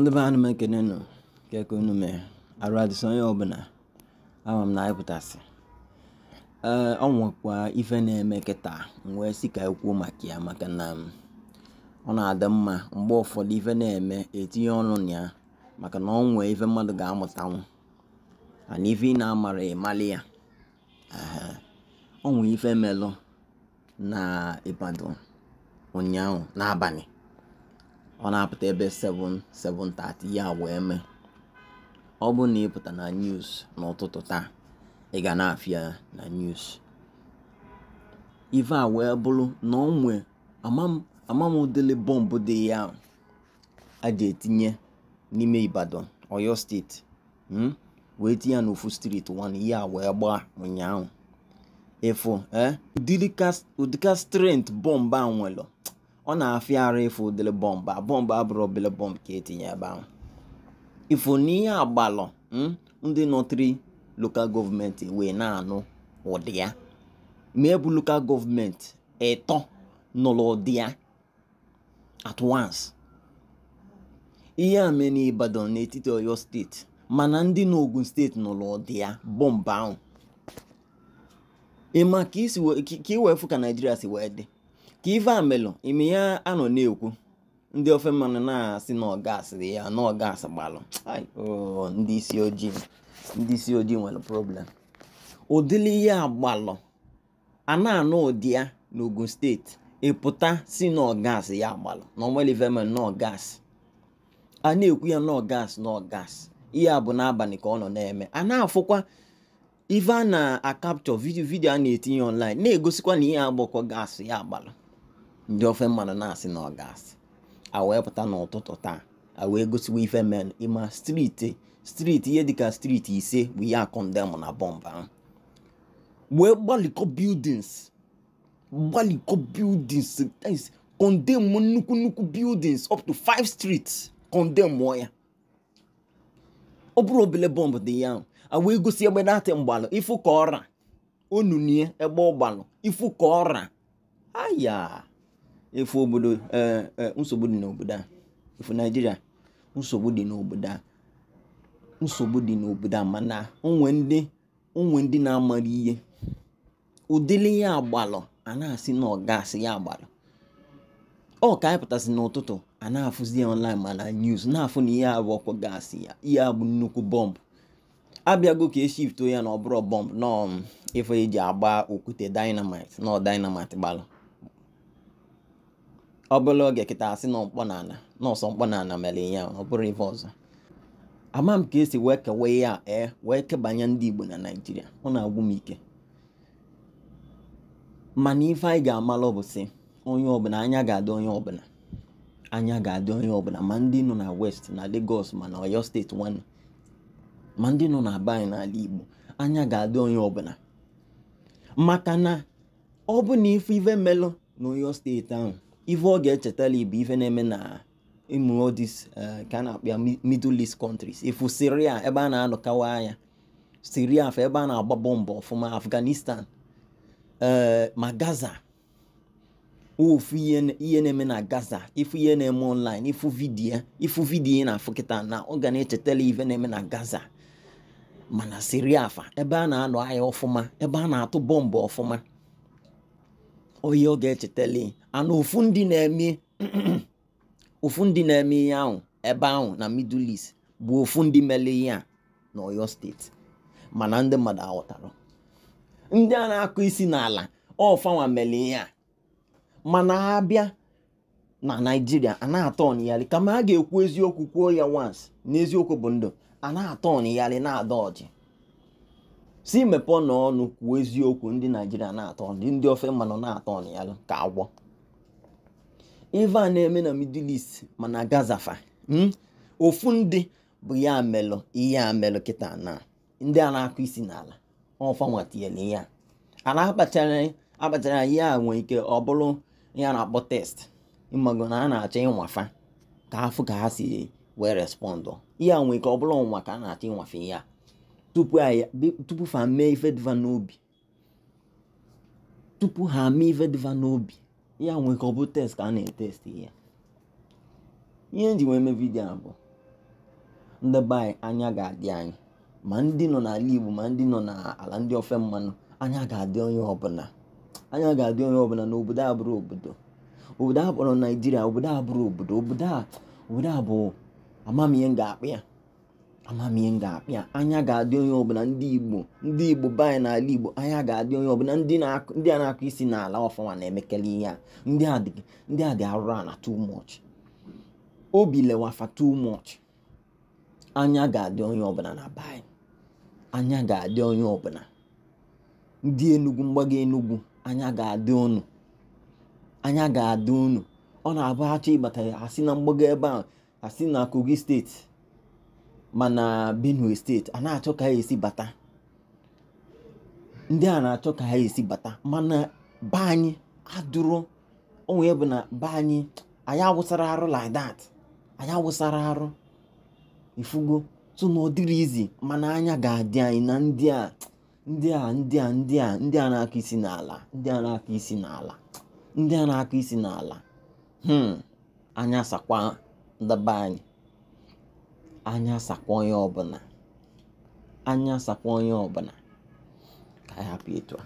ndị be anụ m ekene e keke unu mee onye ọbụla ama m na anyịpụtasị ee ọ nwekwa ife na-eme kịta wee si ka ekwuo maka ya maka na ọ na-adị mma mgbe ụfọdụ ife na-eme etinye ọnụ na ya maka na ọ nwee ife mmadụ ga-amụtanwu ana ife ị na-amara ịmalị ya ọ nwee ife melụ na Ibadan ụnyaahụ n'abalị ọ na-apụta ebe 7 7:30 ya wee mee ọ bụ na ịpụta na news n'ụtụtụ taa ị ga na-afịa ya na news ive a wee bụrụ na ọ nwee amamudele bọmbụ dị ya a ji etinye n'ime Ibadan Oyo steeti hmm? wee tinye ya n'ofu street 1 ya wee gbaa ụnyaahụ ịfụ ụdịka eh? strength bọmbụ a ọ na-afịa ara ịfụ dịrị bọmbụ bọmbụ abụrụ obele bọmbụ ka etinye ebe ahụ ifo na ihe agbalụ hmm, ndị nọtịrị lokal gọọmenti wee na-anụ ụdị ya ma ebu lokal gọọmenti ịtọ nụrụ ụdị ya at once ihe a mee n'Ibadan n'etiti Oyo steeti mana ndị n'Ogun steeti nụrụ ụdị ya bọmbụ ahụ ị ma ka ka Naijiria si wee dị ka ife a melụ ime ya anọ na-ekwu ndị ofe mmanụ na-asị na ọgasị ya na ọgasị gbalụ ndị isi ojii ndị isi ojii nwere problem ụdịrị ihe agbalụ ana na-anụ ụdị ya n'Ogun steeti ịpụta si na ọgasị ya agbalụ na ọmalivemel na ọgasị a na-ekwu ya na ọgasị na ọgasị ihe a bụ n'abalị ka ọ nọ na-eme a na-afụkwa ife a na-akapchọ vidio vidio a na-etinye online na-egosikwa na ihe agbakọ gas ya agbalụ ndị ofe mmadụ na-asị na ọ ga a wee pụta n'ụtụtụ taa a wee gosiwa ife men ịma striti striti ihe dịka striti ise bụ ihe akọndemụ na bọmbụ ahụ wee gbalikọ buildings gbalikọ buildings kọndemụ nnukwu nnukwu buildings up to five streets kọndemụ ya ọ bụrụ obele bọmbụ dị ya ahụ a wee gosi egbe na-atị mgbalụ ifu ka ọra onunie ebe ọgbalụ ifu ka ọra aya efu obodo eh, eh, nsogbu dị n'obodo a efu naijiria nsogbu dị n'obodo a nsogbu dị n'obodo a mana onwe ndị onwe ndị na-amara ihe ụdịrị ya agbalụ a na-asị na ya agbalụ ọ ka anyị pụtasị n'ụtụtụ a na-afụzi ya online mana news na-afụ na ihe abụ ọkụ gasị ya ihe abụ nnukwu bọmbụ abịago ka eshifto ya na ọ bụrụ bọmbụ nọ ife um, eji agba okwute dinamit nọ dinamit gbalụ ọ bụla oge kịta asị na n'ala na ana mkpọ mere ya ọ bụrụ ife ọzọ ama m ka esi wee kewe ihe a ee wee kebanye ndị Igbo na Naịjirịa ọ na-agwụ m ike mana ife anyị ga-amalụ bụ si onye ọbụla anya ga-adị onye ọbụla anya ga-adị onye ọbụla ma ndị nọ na West na Lagos ma na Oyo steeti nwanne ma ndị nọ na be anyị n'ala Igbo anya ga-adị onye ọbụla maka na ọ bụ na ife ive melụ na Oyo steeti ahụ ife ọ ga-echetala ibu ife na-eme na ịmụ this ka a na akpịa middle east countries ifu syria ebe a na-anọkawa anya syria fa ebe a na-agba bọmbụ ọfụma afghanistan eh, ma gaza ofu ihe na-eme na gaza ifu ihe na-eme online ifu vidiyo ifu vidiyo na afụ na ọ ga na-echetala ife na-eme na gaza mana syria fa ebe a na-anọ ahịa ọfụma ebe a na-atụ bọmbụ ọfụma oyi ọ ga echetale ana ụfụ ndị na-eme ụfụ ndị na-eme ihe ahụ ebe ahụ na middle east bụ ụfụ ndị mere ihe a na oyo steeti mana ndị mmadụ aghọtara ndị a na-akụ isi n'ala ọfanwa mere ihe a mana ha bịa na naijiria a na-atọ ọnịgharị kama a ga-ekwu eziokwu kwuo ya once n'eziokwu bụ ndụ a na-atọ ọnịgharị na-ada ọjị si mepee n'ọnụ kwuo eziokwu ndị naijiria na-atọ ndị ofe mmanụ na-atọ ọnịgharị ka agwọ ife a na-eme na middle east mana gazafa hmm? ofu ndị bụ ya melụ ihe a melụ kịta na ndị a na-akụ isi n'ala ọfanwatiele ya a na-akpachara ya nwee ike ọ bụrụ ya na-akpọ test mmadụ na a na-achọ ịnwafa ka afụ ka ha si wee respọndụ ihe a nwee ike ọ bụrụ ọnwa ka a na-achọ ịnwafe ya tupu ha tupu ha mee ife dịva n'obi ya nwe ka ọ bụ test ka a na-etesti ya ihe nji wee mee vidio a bụ ndị anya ga-adị anyị ma ndị nọ n'ala Igbo ma ndị nọ n'ala ndị ofe mmanụ anya ga-adị onye ọbụla anya ga-adị onye ọbụla na obodo a bụrụ obodo obodo a kpọrọ Naijiria obodo a bụrụ obodo obodo a obodo a bụ amamihe m ga-akpụ ya amamihe ga-apịa anya ga-adị onye ọbụla ndị igbo ndị igbo be n'ala igbo anya ga-adị onye ọbụla ndị a na-akụ isi n'ala ọfọma na-emekele ihe a ndị a dị arụrụ ana too much obi lewafa too much anya ga-adị onye ọbụla na be anya ga-adị onye ọbụla ndị enugwu mgbago enugwu anya ga-adị unu anya ga-adị ọ na-abụ achọ ịbata asị na mgbago ebe a asị na kogi steeti mana benue steeti a na-achọ ka ha esi bata ndị a na-achọ ka ha esi bata mana be anyị adụrụ onwe bụ na be anyị anyị awụsara arụ like anyị awụsara arụ ifugo so na ọ izi mana anya ga-adị anyị na ndị a ndị a ndị a ndị a ndị a na-akụ isi n'ala ndị a na-akụ isi n'ala ndị a na-akụ isi n'ala hmm, anya sakwa ndaba anyị anya sakwa onye ọbụla anya sakwa onye ọbụla ka anyị itu?